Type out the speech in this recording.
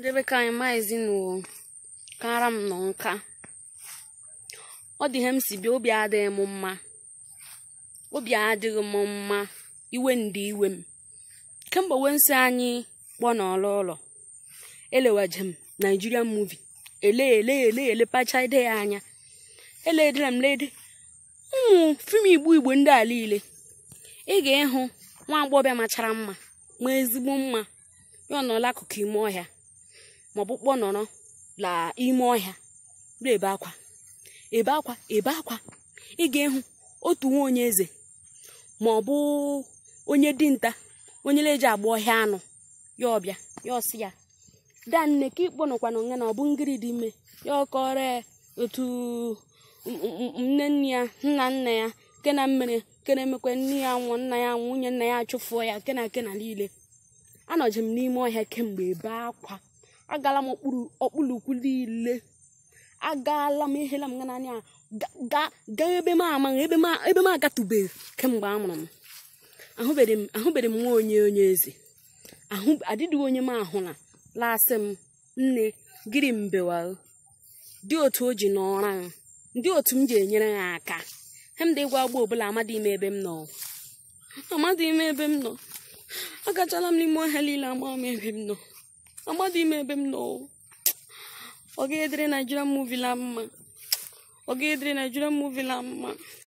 ndebe ka anyị maa ezinụlọ kara m nọ nka ọ dị ihe m si bịa obi adịghị m mma obi adịghị m mma iwe ndị iwe m kemgbe nsị anyị kpọọ n'ọlụ ụlọ elewaje m Nigerian movie ele ele ele pacha ide ya anya eledere m lede ụmụ fim igbo igbo ndị a niile ị ga-ịhụ nwa agbọghọbịa machara mma ma ezigbo mma ya ọ nọla akụkụ ime ọhịa maọbụ kpọnọrọ la ime ọhịa ebe akwa ebe akwa ebe akwa ị ga ehu otu nwa onye eze maọbụ onye dinta onye na-eji agba ọhịa anụ ya ọbịa ya ọsị ya da nne ka ịkpọnọkwana nga na ọ bụ ngiri dị ime ya ọkọrọ otu nne nne ya nna nna ya nke na mmiri nke na-emekwa nne ya nwụọ nna ya nwunye nna ya achụfuo ya nke na nke na niile anọjim n'ime ọhịa kemgbe ebe akwa agala m okpulukwu niile agaala m ihela m n'anya gaa ebe m amaghị ebe m agatụbeghị kemgbe a mụrụ m ahụbeghị m nwa onye onye eze adịdịghị onye m ahụla lasị m nne gịrị mbewa dị otu o ji n'ọra m ndị otu m ji enyere ha aka hemda ịgwa agba ọbụla amadị ime ebe m nọ amadị ime ebe m nọ agachala m n'ime ohe niile ama m ebe m nọ dị ime ebe m nọ ọ ga-edere Nigerian movie la mma ọ la mma